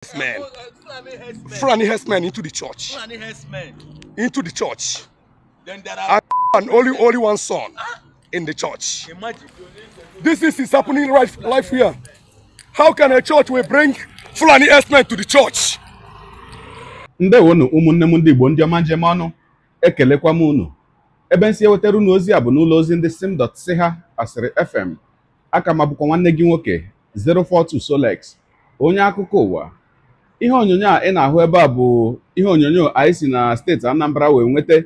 Franny Fulani herdsmen into the church. Into the church. Then there are and only only one son in the church. Imagine. This is, is happening right life here. How can a church will bring Fulani herdsmen to the church? ndewonu ụmụnne m ndị Igbo ndị ọma njem ọnụ ekelekwa m unu ebe nsi ewetara unu ndị asịrị fm aka m abụkwa 042 Solex Onya akụkọ ihe onyonyo a ị na-ahụ ebe a bụ ihe onyonyo anyị si na steeti Anambra wee nweta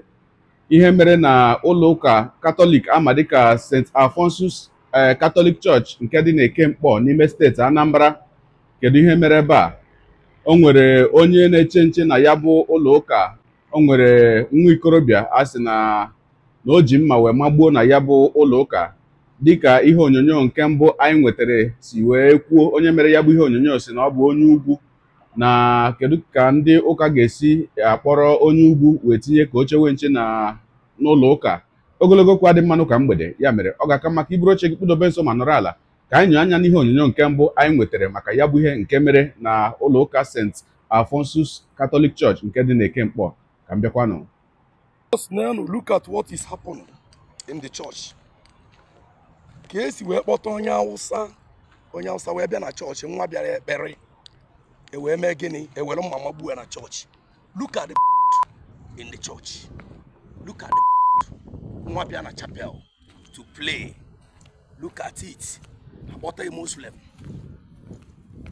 ihe mere na ụlọ ụka katọlik ama dịka St. alfonsus katọlik eh, Church nke dị n'Eke Mkpọ n'ime steeti Anambra kedu ihe mere ebe a o nwere onye na-eche nche na ya bụ ụlọ ụka o nwere nwa ikorobịa a sị na na o ji mma wee magbuo na ya bụ ụlọ ụka dịka ihe onyonyo nke mbụ anyị nwetara si wee kwuo onye mere ya bụ ihe onyonyo si na ọ bụ onye ugwu na kedu ka ndị ụka ga-esi akpọrọ onye ugwu wee tinye ka oche we nche na n'ụlọ ụka ogologo okwu adị mmanụ ka mgbede ya mere ọ ga-aka maka iburu oche gị kpụdobe nso ma nọrọ ala ka anyị nyo anya n'ihe onyonyo nke mbụ anyị nwetara maka ya bụ ihe nke mere na ụlọ ụka St. afonsus katọlik chọọchị nke dị na Ekemkpọ ka m bịakwanụ look at what is happening in the church. ka esi wee kpọta onye awụsa onye awụsa wee bịa na chọọchị nwa bịara ekpere ewee mee gịnị ewere mama gbuo ya na church. look at the in the church look at the nwa bịa na chapel to play look at it What a muslim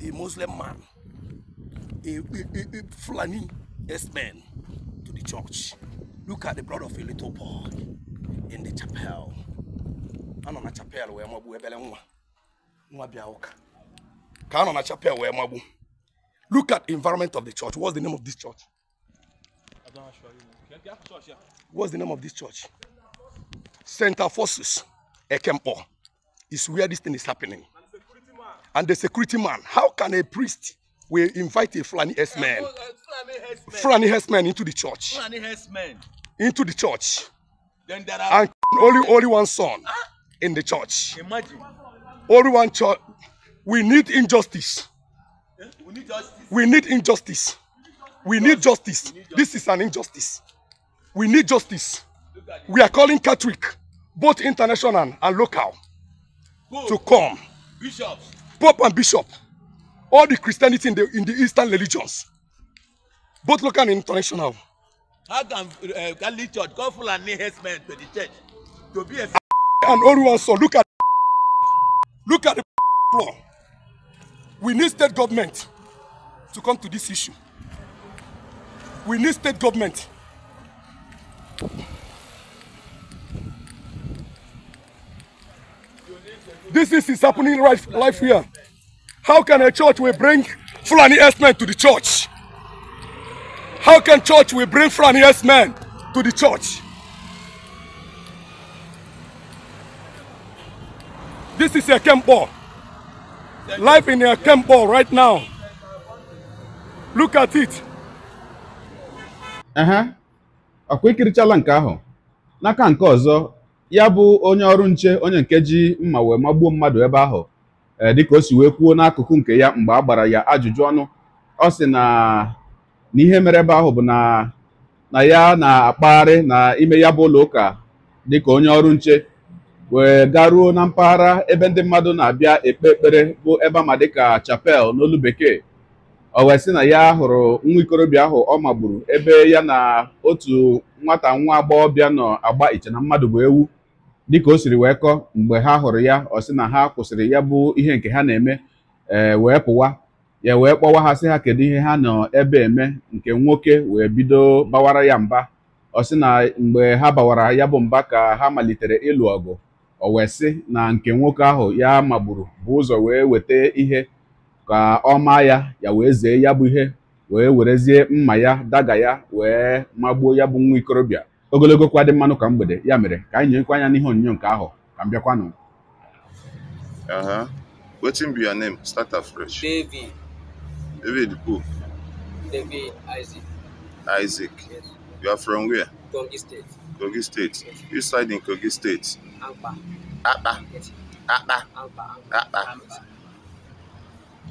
a muslim man a, a, a a fulani yes man. to the church look at the blood of a little boy in the chapel anọ na chapel wee magbu ebele nwa nwa bịa ụka ka anọ na chapel wee magbu Look at environment of the church. What's the name of this church? What's the name of this church? Center Forces, Ekempo, is where this thing is happening. And the security man, how can a priest will invite a man, herdsman, Fulani man into the church, Fulani man into the church, then there are and only only one son in the church. Imagine only one church. We need injustice. We need justice. We need injustice. We need justice. This is an injustice. We need justice. We are calling Catholic, both international and local, Pope, to come. Bishops. Pope and Bishop. All the Christianity in the, in the Eastern religions, both local and international. How can uh, Catholic Church go full and harassment to the church? To be a and one so look at look at We need state government to come to this issue. We need state government. This is, is happening right life here. How can a church will bring Fulani S-men to the church? How can church will bring Fulani S-men to the church? This is a camp ball. "Life in a camp ball right now. Look at it. Aha, ọkwa ikirichala nke ahụ n'aka nke ọzọ ya bụ onye ọrụ nche onye nke ji mma wee magbuo mmadụ ebe ahụ eh, dịka o si wee kwuo n'akụkụ nke ya mgbe a gbara ya ajụjụ ọnụ ọ sị na ihe mere ebe ahụ bụ na na ya na-akpagharị na ime ya bụ ụlọ ụka dịka onye ọrụ nche wee garuo na mpaghara ebe ndị mmadụ na-abịa ekpe ekpere bụ ebe ama dịka chapel n'olu bekee o wee sị na ya hụrụ nwa ikorobịa ahụ ọ magburu ebe ya na otu nwata nwa agbọghọbịa nọ agba iche na mmadụ bụ ewu dịka o siri wee kọọ mgbe ha hụrụ ya ọ sị na ha kwụsịrị ya bụ ihe nke ha na-eme ee wee pụwa ya wee kpọwa ha sị ha kedu ihe ha nọ ebe eme nke nwoke wee bido bawara ya mba ọ sị na mgbe ha bawara ya bụ mba ka ha malitere ịlụ ọgụ o wee na nke nwoke ahụ ya magburu bụ ụzọ wee weta ihe ka ọ maa ya ya wee zee ya bụ ihe wee werezie mma ya daga ya wee magbuo ya bụ nwa ikorobịa ogologo kwa dị mmanụ ka mgbede ya mere ka anyị nyekwa anya n'ihe onyonyo nke ahụ ka m bịakwanụ Isaac. You are from where? Kogi State. Kogi State. Yes. Which side in Kogi State? Ampa. Apa. Yes. Apa. Ampa. Apa. Ampa.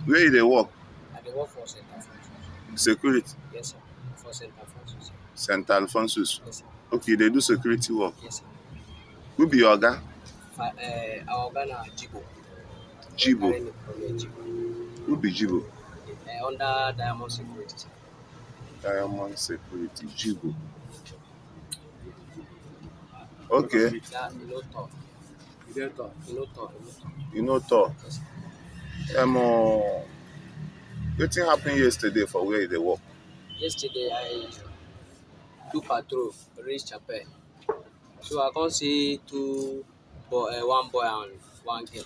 Where do they work? I dey work for St. Alphonsus. Security? Yes, sir. For St. Alphonsus. St. Alphonsus? Yes, sir. Okay, they do security work? Yes, sir. Who be your guy? Eh, our guy na Jibo. Jibo? Who be Jibo? Eh, under Diamond Security, sir. Diamond Security Jibu. Okay. You know talk. Um, uh, wetin happen yesterday for where you dey work? Yesterday I do patrol reach Chapel. So I come see two boy, uh, one boy and one girl.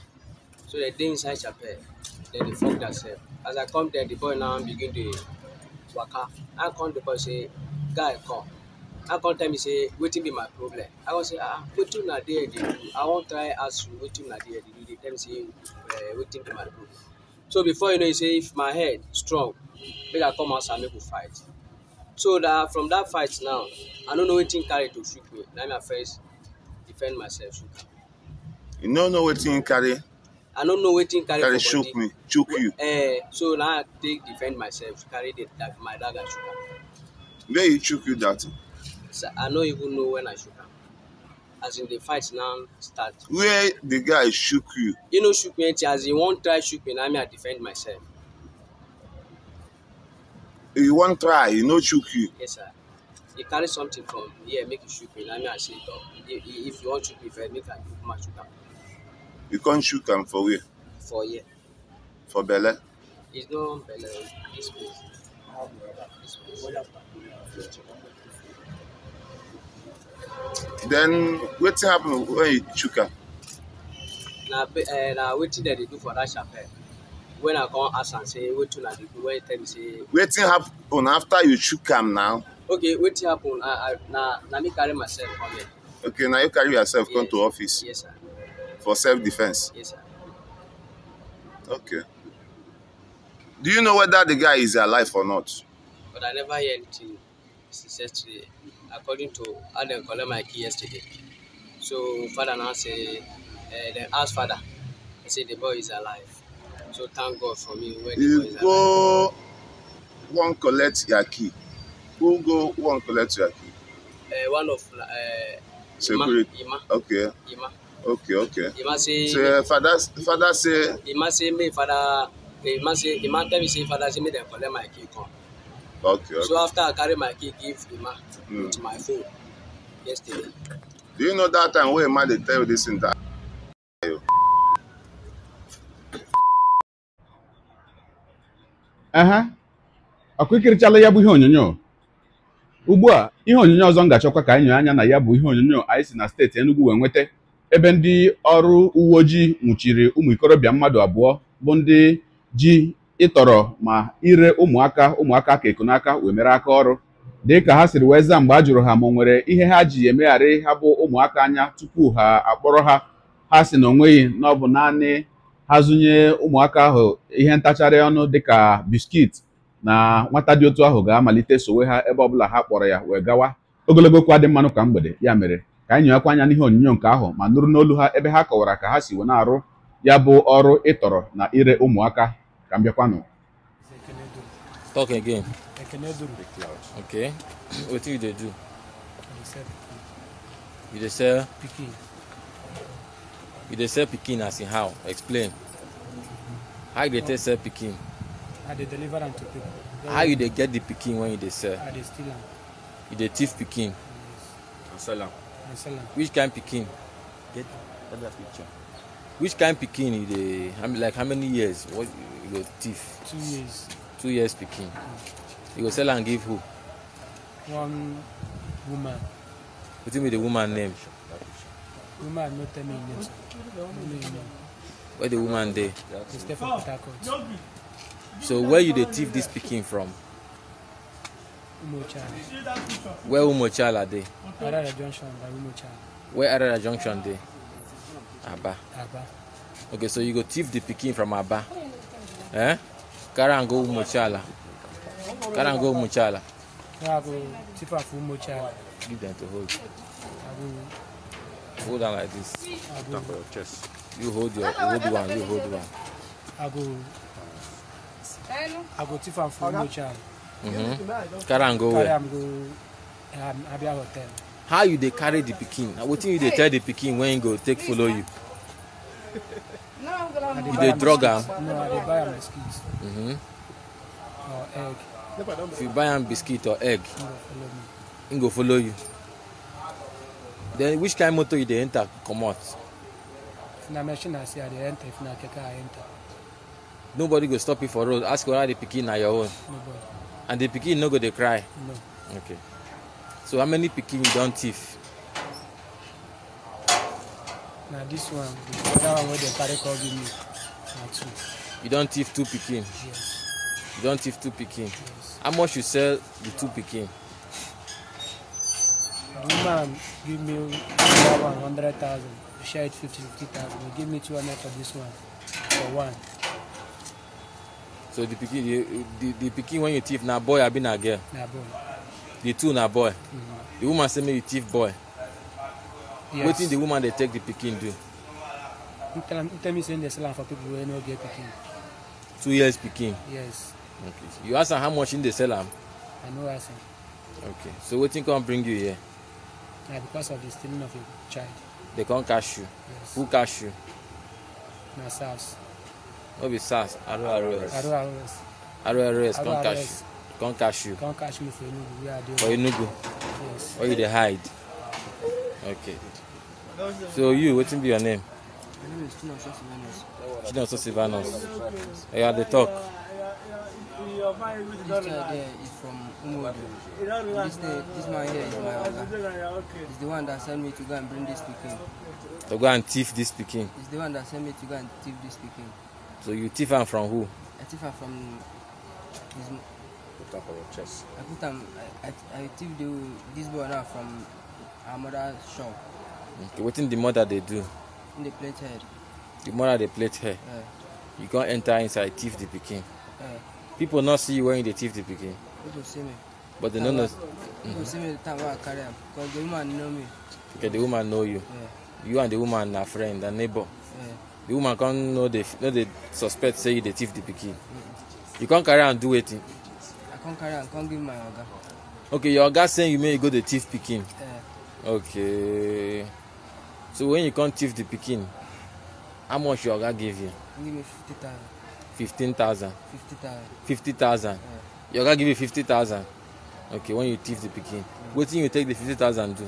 So they dey inside Chapel. Then they fuck themselves. As I come there, the boy now begin to waka i come the boy say guy come i come tell me say wetin be my problem i go say ah wetin una there dey do i wan try ask you wetin una there dey do dey tell me say uh, wetin be my problem so before you know you say if my head strong make i come outside make we fight so that from that fight now i no know wetin carry to shoot me na me i first defend myself shoot you no know wetin carry i no know wetin carry for choke body me choke you uh, so na i take defend myself carry the like, my dagger shoot am where he choke you that so, i no even know when i shoot am as in the fight now start where the guy choke you he no choke me until as he wan try choke me na me i defend myself he wan try he no choke you yes sir he carry something from here make he choke me na me i say if you wan choke me first make i choke my choke am You can't shoot am for where? For here. For Bele? It's not Bele, this This Then what happened when you chook am? Na uh, na What did they do for that chapel. When I come ask am say wetin una dey do, when he tell me say. What happened after you chook am now? Okay, what happened? I, I, na na me carry myself come here. Okay, now you carry yourself yes. come to office. Yes, sir for self-defense? Yes, sir. Okay. Do you know whether the guy is alive or not? But I never hear anything since yesterday, according to how they collect my key yesterday. So father now say, uh, they ask father, he say the boy is alive. So thank God for me when you the boy is alive. Go one collect your key. Who go one collect your key? Uh, one of uh, Security. Ima. Okay. Ima. Okay, okay. Imase. So uh, father, father say. Imase me father. Imase Ima tell me say father say me dey collect my key come. Okay, okay. So after I carry my key give Ima mm. with my phone yesterday. Do you know that time wey Ima dey tell you this thing that? aha ọkụ ikirichala ya bụ ihe onyonyo ugbu a ihe onyonyo ọzọ m ga-achọkwa ka anyị nyere anya na ya bụ ihe onyonyo anyị si na steeti Enugu wee nweta ebe ndị ọrụ uwe ojii nwụchiri ụmụ ikorobịa mmadụ abụọ bụ ndị ji ịtọrọ ma ire ụmụaka ụmụaka ka ekunaka wee mere aka ọrụ dị ka ha siri wee zaa mgbe a jụrụ ha ma o nwere ihe ha ji emegharị ha bụ ụmụaka anya tupu ha akpọrọ ha ha si na onweghị na ọ bụ naanị ha zụnye ụmụaka ahụ ihe ntacharị ọnụ dịka biskit na nwata dị otu ahụ ga-amalite sowe ha ebe ọbụla ha kpọrọ ya wee gawa ogologo okwu adị mmanụ ka mgbede ya mere ka anyị nyewekwa anya n'ihe onyinyo nke ahụ ma nụrụ n'olu ha ebe ha kọwara ka ha si na-arụ ya bụ ọrụ ịtọrọ na ire ụmụaka ka m bịakwanụ you dey as in how? Explain. How you dey sell pikin? How you dey get the pikin which kind pikin get get that picture which kind pikin you dey like how many years what you go two years two years pikin you go sell am give who one woman wetin be the woman name woman no tell me her name no know her name where the woman dey she stay for port harcourt so where you dey thief this pikin from umochara where umochara dey Arara Junction by Umucha. Where Arara Junction dey? Aba. Aba. Okay, so you go thief the pikin from Aba. Eh? Carry am go Umochala. Carry am go Umochala. Give them to hold. Hold on like this. I Top of your chest. You hold your hold one. You hold one. Abu. go. I go thief am for Umochala. mm mm-hmm. um, Abia Hotel how you dey carry the pikin na wetin you dey tell the pikin when he go take follow you you dey drug am. no i dey buy am biscuit. Mm -hmm. or egg. if you buy am biscuit or egg he go follow you then which kind of motor you dey enter comot. if na machine i see i dey enter if na keke i enter. nobody go stop you for road ask whether the pikin na your own. nobody. and the pikin no go dey cry. no. okay. So how many pikin you don thief? Na this one, the other one wey dem carry come give me na two. You don thief two pikin? Yes. You don thief two pikin? Yes. How much you sell the two pikin? The woman give me that one hundred thousand, we share it fifty fifty thousand, they give me two hundred for this one, for one. So the pikin, the the, the pikin wey you thief na boy abi na girl? Na boy the two na boy mm-hmm. the woman say make you thief boy yes. wetin the woman dey take the pikin do. you tell, you tell me say they sell am for people wey no get pikin. two years pikin. yes. okay so you ask am how much im dey sell am. i no ask am. okay so wetin come bring you here. na because of the stealing of a child. they come catch you. yes who catch you. na sars. no be sars ros ros ros ros come catch you. Come catch you. Come catch me for Enugu. Where are For Enugu. Yes. Where you the hide? Okay. So you, wetin be your name? My name is Chinoso Sivanos. Chinoso Sivanos. Oya the talk. This guy there is from Umuodo. This, this man here is my oga. He's the one that sent me to go and bring this pikin. To go and thief this pikin? He's the one that sent me to go and thief this pikin. So you thief am from who? I thief am from his put am for chest. I put them. I I, I thief the this boy now from our mother shop. Okay, what in the mother they do? Dey plate hair. The mother they plate hair. Yeah. You can't enter inside thief the pikin. Yeah. People not see you wearing the thief the pikin. People see me. But they no know. People mm-hmm. see me the time I carry them, because the woman know me. Okay, the woman know you. Yeah. You and the woman are friend and neighbor. The woman can't know the know the suspect say you the thief the pikin. Mm. You can't carry and do anything come carry am come give my oga. okay your oga send you make you go dey thief pikin. Uh, okay so when you come thief the pikin how much your oga give you. give me fifty thousand. fifteen thousand. fifty thousand. fifty thousand. your oga give you fifty thousand. okay when you thief the pikin yeah. wetin you take the fifty thousand do.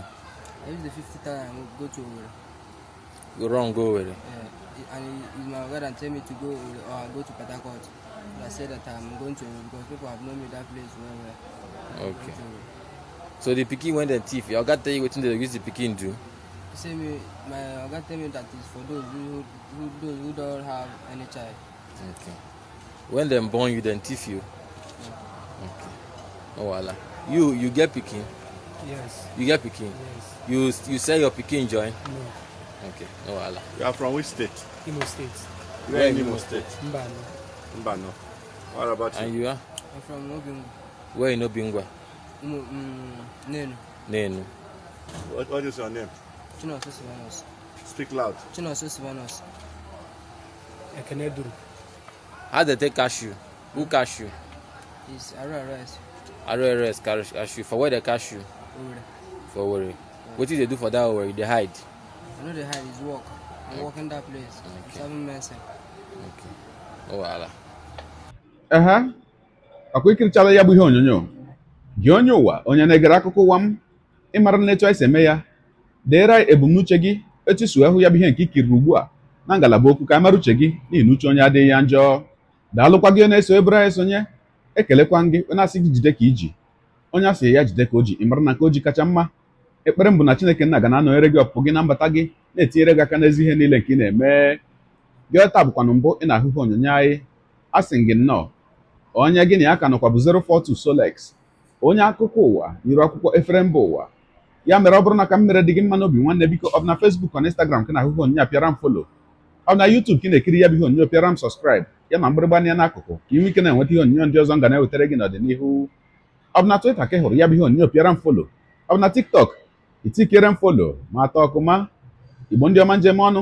i use the fifty thousand go to owerri. go run go owerri. Yeah. and he, my oga dan tell me to go owerri or i go to port harcourt. I said that I'm going to because people have known me that place well well. Okay. So the picking went and thief. Your God tell you what they use the picking do. Say me, my Oga tell me that is for those who, who those who don't have any child. Okay. When them born you, then thief you. Yeah. Okay. Oh voila. You you get picking. Yes. You get picking. Yes. You you sell your picking join. No. Okay. Oh voila. You are from which state? Imo State. Where in Imo State? Mbano. Mba no. What about you? And you are? I'm from Obingwa. Where in Obingwa? Mm, mm, Nenu. Nenu. What, what is your name? Chinoso Sivanos. Speak loud. Chinoso Sivanos. Ekeneduru. How they take cash you? Who hmm. cash cashew? It's Araras. cash you For where they cashew? Owere. For Owere. Yeah. What did they do for that Owere? They hide? I know they hide. It's work. I'm okay. working that place. Okay. Seven months. Okay. ehe ọkwa ikirichala ya bụ ihe onyonyo gị onye ụwa onye na-egere akụkọ ụwa m ịmara na etu anyị si eme ya deere anyị ebumnuche gị etusu ahụ ya bụ ihe nke ikiri ugbu a na ngalaba okwu ka a mara uche gị na uche onye adịghị ya njọ daalụkwa gị na-eso ebere anyị sonye ekelekwa gị onye asị gị jide ka iji onye asị ya jide ka o ji ịmara na nke o ji kacha mma ekpere m bụ na Chineke nna ga na-anọnyere gị ọpụpụ gị na mbata gị na-etinyere gị aka n'ezi ihe niile nke ị na-eme gị taa bụkwana mbụ ị na-ahụhụ onyonyo anyị a sị gị nnọọ onye gị na ya ka nọkwa bụ 042 Solex onye akụkọ ụwa nyere akwụkwọ efere mba ụwa ya mere ọ bụrụ na ka m mere dị gị mma n'obi nwanne biko ọ bụ na fesbuk na Instagram ka na-ahụhụ onyonyo a pịara m folo ọ bụ na yutub ka ị na-ekiri ya bụ ihe onyonyo pịara m sọskraịb ya ma mgbịrịgba n'akụkụ ka ị nwee ike na-enweta ihe onyonyo ndị ọzọ m ga na-ewetara gị n'ọdịnihu ọ bụ na ka hụrụ ya bụ ihe onyonyo pịara m folo ọ bụ na TikTok itikere m folo ma atọ ọkụma igbo ndị ọma njem ọnụ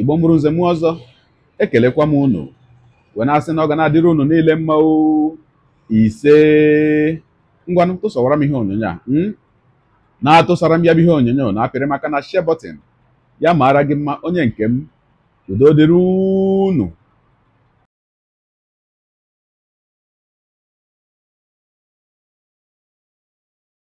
igbo mụrụ nze m ọzọ ekelekwa m unu wee na-asị na ọ ga na-adịrị unu niile mma ise ngwa tụsọwara m ihe onyonyo a hmm? na-atụsara m ya bụ ihe onyonyo na-apịrị maka na shebọtin ya maara gị mma onye nke m udo dịrị unu